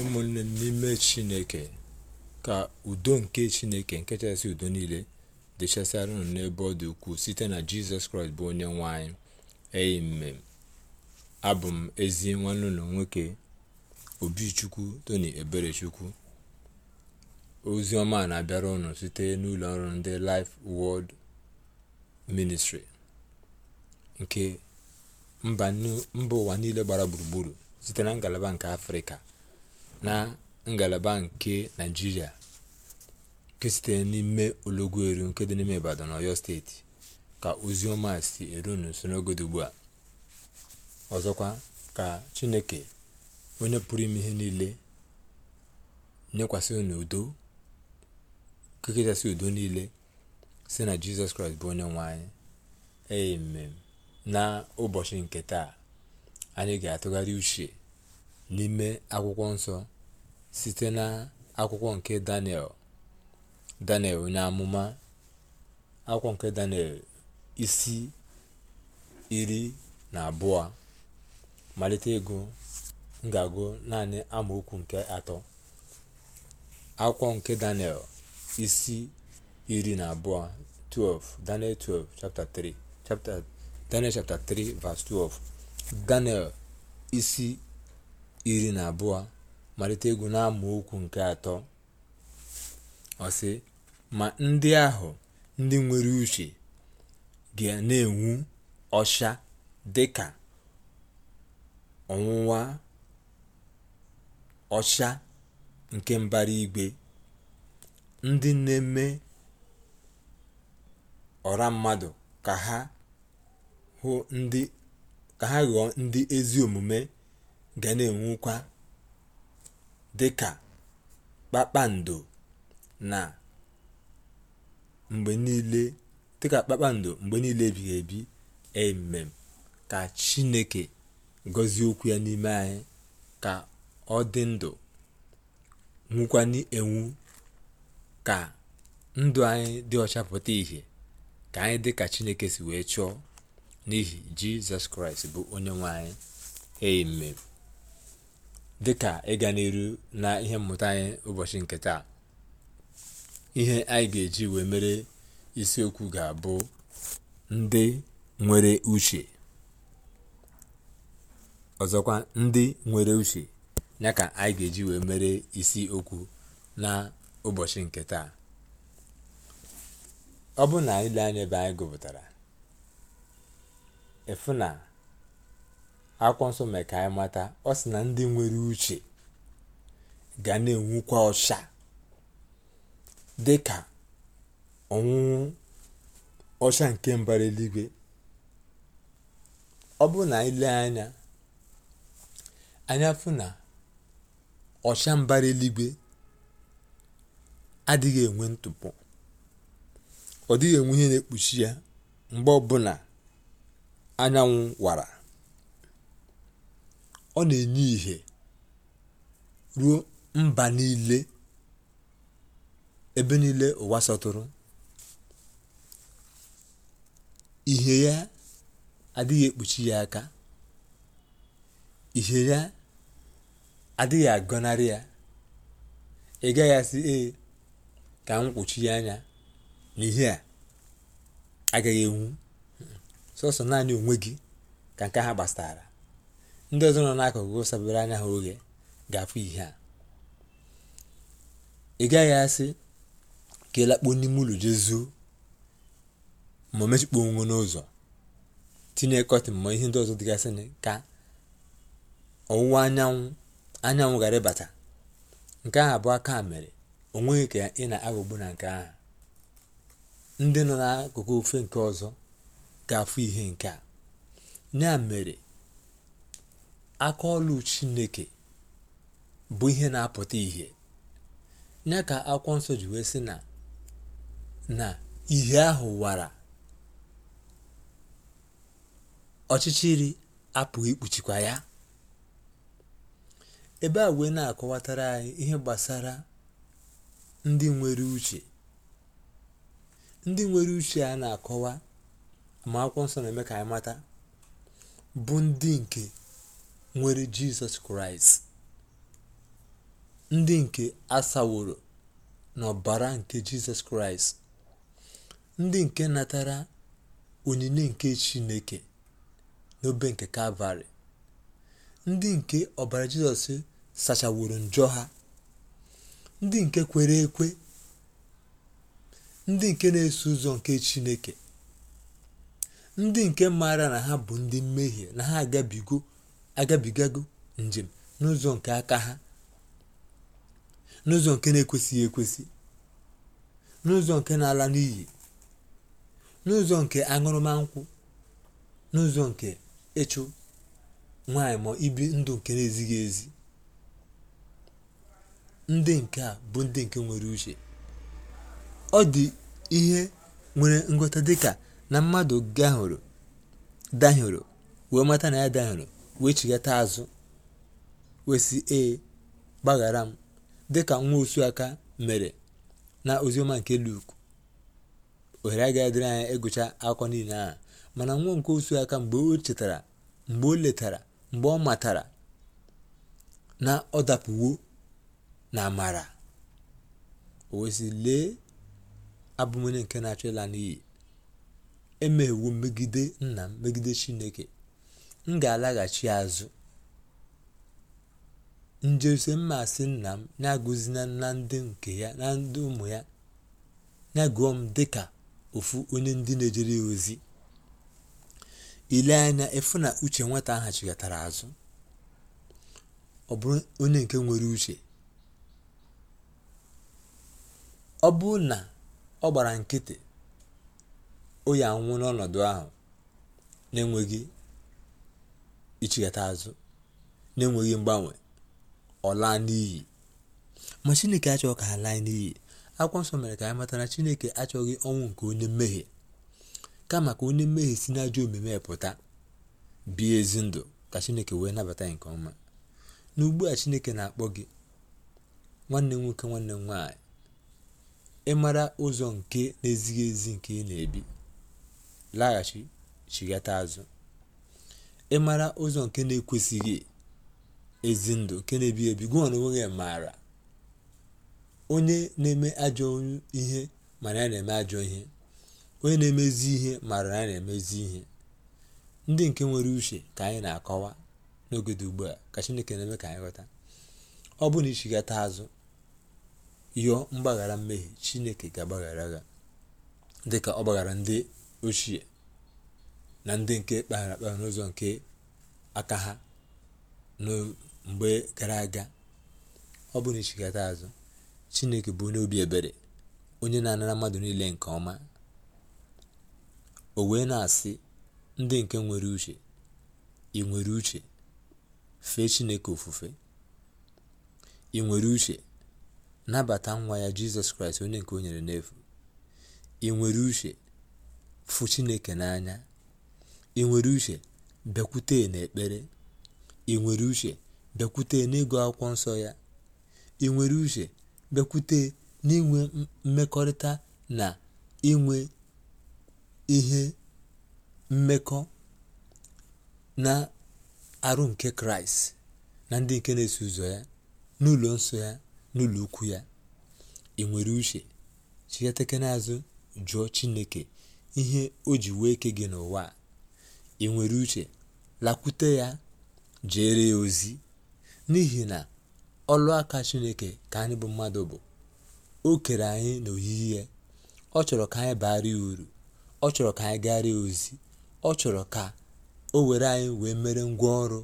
ụmụnne n'ime chineke ka udo nke chineke nke kachasị udo niile dịchasịara unu n'ebe ọ dị ukwuu site na jizọs kraịst bụ onye nwanyị eyi amen abụ m ezi nwanne ụlọ nwoke obichukwu toni eberechukwu ozi ọma na-abịara ụnụ site n'ụlọ ọrụ ndị Life wọld ministri nke mba ụwa niile gbara gburugburu site na ngalaba nke afrịka na ngalaba nke naijiria nke sitere n'ime ologu eru nke dị n'ime ibadan na ọyọ steeti ka ozi si eru n'usoro n'oge ugbu a ọzọkwa ka chineke onye pụrụ ime ihe niile nyekwasị unu udo nke udo niile si na jizọs kraịst bụ onye nwe anyị amen na ụbọchị nke taa anyị ga-atụgharị uche n'ime akwụkwọ nsọ site n'akwụkwọ nke daniel daniel onye amụma akwụkwọ nke daniel isi iri na abụọ malite ego m naanị amaokwu nke atọ akwụkwọ nke daniel isi iri na abụọ 12 daniel 12 chapter 3 chapter daniel chapter 3 verse 12 daniel isi iri na abụọ malite egwu na okwu nke atọ ọsị ma ndị ahụ ndị nwere uche ga na-enwu ọcha dị ka ọnwụnwa ọcha nke mbara igwe ndị na-eme ọra mmadụ ka ha ghọọ ndị ezi omume ga na-enwukwa dịka kpakpando mgbe niile kpakpando mgbe ebighị ebi emem ka chineke gọzie okwu ya n'ime anyị ka ọ dị ndụ nwụkwanye enwu ka ndụ anyị dị ọchapụta pụta ìhè ka anyị dị ka chineke si wee chọọ n'ihi jizọs kraịst bụ onye nwe anyị amen dịka ịga n'iru na ihe mmụta anyị ụbọchị nke taa ihe anyị ga-eji wee mere isiokwu ga-abụ ndị nwere uche ọzọkwa ndị nwere uche ya ka anyị ga-eji wee mere isi okwu na ụbọchị nke taa ọ bụ na ile anya ebe anyị gụpụtara efu na akwụkwọ nso mee ka anyị mata ọ sị na ndị nwere uche ga na-enwukwa ọcha dị ka ọnwụnwụ ọcha nke mbara eluigwe ọ bụrụ na anyị anya anya fụ na ọcha mbara eluigwe adịghị enwe ntụpọ ọ dịghị enwe ihe na-ekpuchi ya mgbe ọbụla anyanwụ wara ọ na-enye ìhè ruo mba niile ebe niile ụwa sọtụrụ ihe ya adịghị ekpuchi ya aka ihe ya adịghị agọnarị ya ị gaghị asị ee ka m ya anya na ihe a agaghị enwu sọsọ naanị onwe gị ka nke ha gbasara ndị ọzọ nọ n'akụkụ sabere anya ha oge ga-afụ ihe a ị gaghị asị ka ịlakpo n'ime ụlọ jezuo ma mechikpuo onwe n'ụzọ tinye kọtịn ma ihe ndị ọzọ dịgasị ka ọwụwa anyanwụ anyanwụ ghara ịbata nke ahụ abụọ aka mere onweghị ka ị na-aghọgbu na nke ahụ ndị nọ n'akụkụ ofe nke ọzọ ga-afụ ihe nke a ya mere ọlụ chineke bụ ihe na-apụta ihe ya ka akwụkwọ nsọ ji wee sị na na ihe ahụ wara ọchịchịrị apụghị ikpuchikwa ya ebe a wee na-akọwatara anyị ihe gbasara ndị nwere uche ndị nwere uche a na-akọwa ma akwụkwọ nsọ na-eme ka anyị mata bụ ndị nke nwere jizọs kraịst ndị nke asaworo n'ọbara nke jizọs kraịst ndị nke natara onyinye nke chineke n'obe nke kalvarị ndị nke ọbara jizọs sachaworo njọ ha ndị nke kwere ekwe ndị nke na-eso ụzọ nke chineke ndị nke mara na ha bụ ndị mmehie na ha agabigo agabigago njem n'ụzọ nke aka ha n'ụzọ nke na-ekwesịghị ekwesị n'ụzọ nke na-ala n'iyi n'ụzọ nke aṅụrụma nkwụ n'ụzọ nke ịchụ nwanyị ma ibi ndụ nke na-ezighị ezi ndị nke a bụ ndị nke nwere uche ọ dị ihe nwere ngọta dị ka na mmadụ gahụrụ dahụrụ wee mata na ya dahụrụ wee chigata azụ wee ee gbaghara m dịka nwa osu aka mere na ozioma nke luk ohere agaghị dịrị anya ịgụcha akụkọ niile ahụ mana nwa nke osu aka mgbe o chetara mgbe o letara mgbe ọ matara na ọ dapụwo na amara o wesị lee abụmonye nke na-achọ ịla n'iyi emeghewo megide nna megide chineke m ga-alaghachi azụ njose asị nna m na-agụzina na ndị nke ya na ndị ụmụ ya ya m dịka ofu onye ndị na-ejere ozi ile anya efu na uche nweta ahụ azụ ọ bụrụ onye nke nwere uche ọ bụrụ na ọ gbara nkịtị o ya anwụ n'ọnọdụ ahụ na-enweghị ichigata azụ na-enweghị mgbanwe ọ laa n'iyi ma chineke achọghị ka ha laa n'iyi akwụkwọ nsọ mere ka anyị mata na chineke achọghị ọnwụ nke onye mmehie kama ka onye mmehie si n'ajọ omume pụta bie ezi ndụ ka chineke wee nabata nke ọma na ugbu a chineke na-akpọ gị nwanne nwoke nwanne m nwaanyị ịmara ụzọ nke na-ezighị ezi nke ị na-ebi laghachi chighata azụ ịmara ụzọ nke na-ekwesịghị ezi ndụ nke na ebi ebi gwa na onwe maara onye na-eme ajọ ihe mara ya na-eme ajọ ihe onye na-emezi ihe mara ya na-emezi ihe ndị nke nwere uche ka anyị na-akọwa n'oge dị ugbu a ka chineke na-eme ka anyị ghọta ọ bụ na ichigata azụ yọọ mgbaghara mmehie chineke ga-agbaghara gha dịka ọ gbaghara ndị ochie na ndị nke kpaghara akpagha n'ụzọ nke aka ha mgbe gara aga ọ bụ na azụ chineke bụ onye obi ebere onye na-anara mmadụ niile nke ọma o wee na-asị ndị nke nwere uche ị nwere uche fee chineke ofufe ị nwere uche nabata nwa ya jizọs kraịst onye nke o nyere n'efu ị nwere uche fụ chineke n'anya ị nwere uche bịakwute n'ekpere ị nwere uche bịakwute n'ịgụ akwụkwọ nsọ ya ị nwere uche bịakwute n'inwe mmekọrịta na inwe ihe mmekọ na arụ nke kraịst na ndị nke na-eso ụzọ ya n'ụlọ nsọ ya n'ụlọ ukwu ya ị nwere uche chighatekena azụ jụọ chineke ihe o ji wee ke gị n'ụwa a ị nwere uche lakwute ya jere ya ozi n'ihi na ọlụaka chineke ka anyị bụ mmadụ bụ o kere anyị n'oyiyi ya ọ chọrọ ka anyị baara ya uru ọ chọrọ ka anyị gara ya ozi ọ chọrọ ka o were anyị wee mere ngwa ọrụ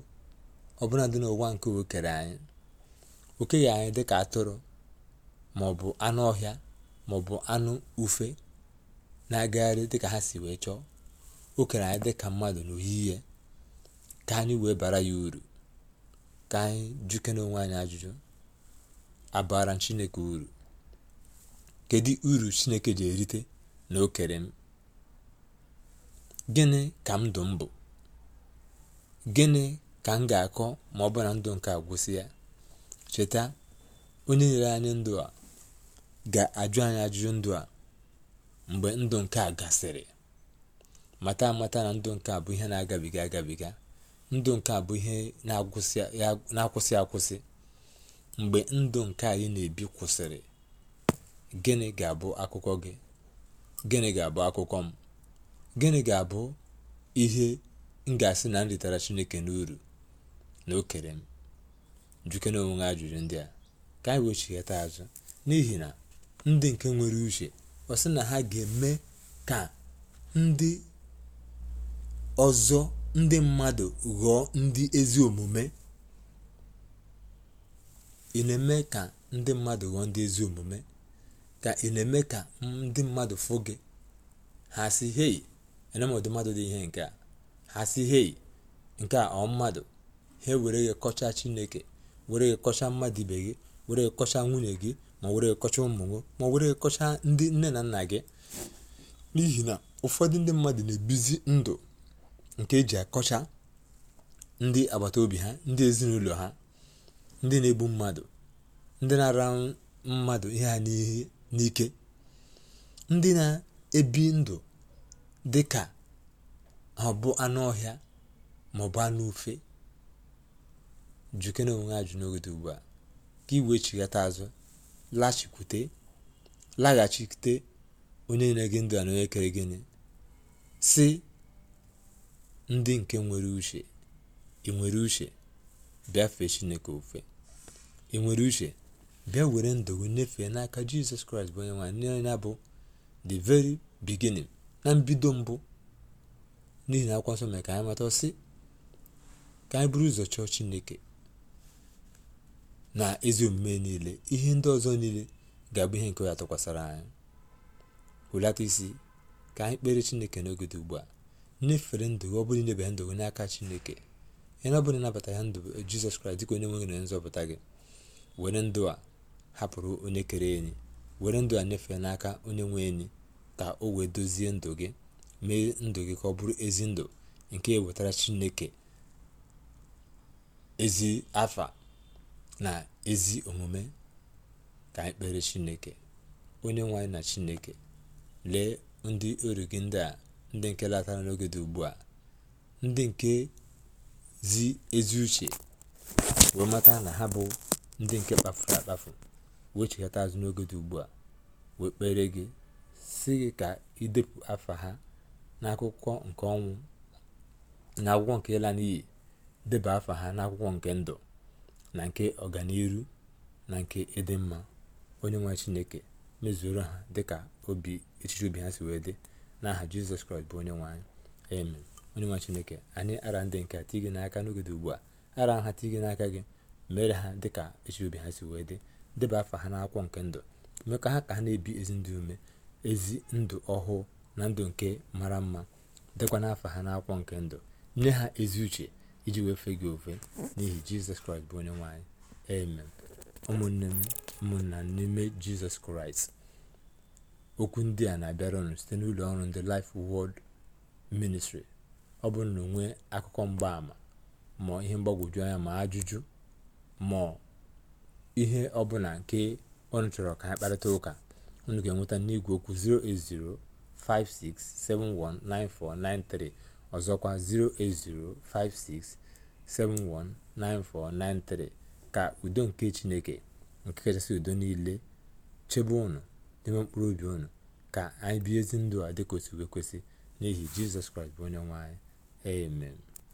ọbụla dị n'ụwa nke o kere anyị o anyị dịka atụrụ ma ọ bụ anụ ọhịa ma ọ bụ anụ ufe na-agagharị dịka ha si wee chọọ okere kere anyị ka mmadụ n'oyiyi ka anyị wee bara ya uru ka anyị jukere onwe anyị ajụjụ abara chineke uru kedu uru chineke ji erite na okere m gịnị ka ndụ m bụ gịnị ka m ga-akọ ma ọ bụ na ndụ nke agwụsị ya cheta onye nyere anyị ndụ a ga-ajụ anyị ajụjụ ndụ a mgbe ndụ nke a gasịrị mata amata na ndụ nke a bụ ihe na-agabiga agabiga ndụ nke a bụ ihe na-akwụsị akwụsị mgbe ndụ nke anyị na-ebi kwụsịrị gịnị ga-abụ akụkọ gị gịnị ga-abụ akụkọ m gịnị ga-abụ ihe m ga-asị na m ritara chineke n'uru na o kere m jukene onwe ha ajụjụ ndị a ka anyị wee azụ n'ihi na ndị nke nwere uche ọ sị na ha ga-eme ka ndị ọzọ ndị mmadụ ghọọ ndị ezi omume ị na-eme ka ndị mmadụ ghọọ ndị ezi omume ka ị na-eme ka ndị mmadụ fụ gị ha si hei enemọdụ mmadụ dị ihe nke a ha si hei nke a ọ mmadụ ha were gị kọcha chineke were gị kọcha mmadụ ibe gị were gị kọcha nwunye gị ma were gị kọcha ụmụ gị ma were gị kọcha ndị nne na nna gị n'ihi na ụfọdụ ndị mmadụ na-ebizi ndụ nke e ji akọcha ndị agbata obi ha ndị ezinụlọ ha ndị na-egbu mmadụ ndị na-ara mmadụ ihe ha n'ike ndị na-ebi ndụ dị ka ha bụ anụ ọhịa ma ọ bụ anụ ufe na onwe ajụ n'oge dị ugbu a ka iwe chighata azụ lachikwute laghachite onye na ege ndụ a na onye kere gịnị si ndị nke nwere uche ị nwere uche bịa fee chineke ofe ị nwere uche bịa were ndụ gị nyefee n'aka jizọs kraịst bụ onye nwaanyị ya bụ the very beginning na mbido mbụ n'ihi na akwụkwọ nsọ mere ka anyị mata sị ka anyị buru ụzọ chọọ chineke na ezi omume niile ihe ndị ọzọ niile ga-abụ ihe nke ya tụkwasara anyị hụlata isi ka anyị kpere chineke n'oge dị ugbu a nyefere ndụ gị ọ bụrụ inyebere ndụ gị n'aka chineke onye ọ bụla ịnabata ya ndụ jizọs kraịst dịka onye nwe gị na nzọpụta gị were ndụ a hapụrụ onye kere enyi were ndụ a nyefee n'aka onye nwe enyi ka o wee dozie ndụ gị mee ndụ gị ka ọ bụrụ ezi ndụ nke wetara chineke ezi afa na ezi omume ka anyị kpere chineke onye nwe anyị na chineke lee ndị oru gị ndị a ndị nke latara n'oge dị ugbu a ndị nke zi ezi uche wee mata na ha bụ ndị nke kpafuru akpafu wee chekata azụ n'oge dị ugbu a wee kpere gị si gị ka idepụ afa ha n'akwụkwọ nke ọnwụ na akwụkwọ nke ịla n'iyi deba afa ha n'akwụkwọ nke ndụ na nke ọganiru na nke ịdị mma onye nwe chineke mezuoro ha dịka obi echiche obi ha si wee dị n'aha jizọs kraịst bụ onye anyị amen onye chineke anyị ara ndị nke tigị n'aka n'oge dị ugbu a ara ha tigị n'aka gị mere ha dịka echi obi ha si wee dị deba afa ha n'akwụkwọ nke ndụ mee ka ha ka ha na-ebi ezi ndụ ume ezi ndụ ọhụụ na ndụ nke mara mma dịkwa n'afa ha n'akwụkwọ nke ndụ nye ha ezi uche iji wee fee gị ofe n'ihi jizọs kraịst bụ onye nwe anyị amen ụmụnne m ụmụnna n'ime jizọs kraịst okwu ndị a na-abịara ọnụ site n'ụlọ ọrụ ndị Life wọld Ministry ọ bụrụ na onwe akụkọ mgbaàmà ma ihe mgbagwoju anya ma ajụjụ ma ihe ọbụla nke ọnụ chọrọ ka ha kparịta ụka unu ga-enweta n'igwe okwu 56719493 ọzọkwa 56719493 ka udo nke chineke nke kachasị udo niile chebe ụnụ. n'ime mkpụrụ obi unu ka anyị bie ezi ndụ a dịka o kwesị n'ihi jizọs kraịst bụ onye nwanyị amen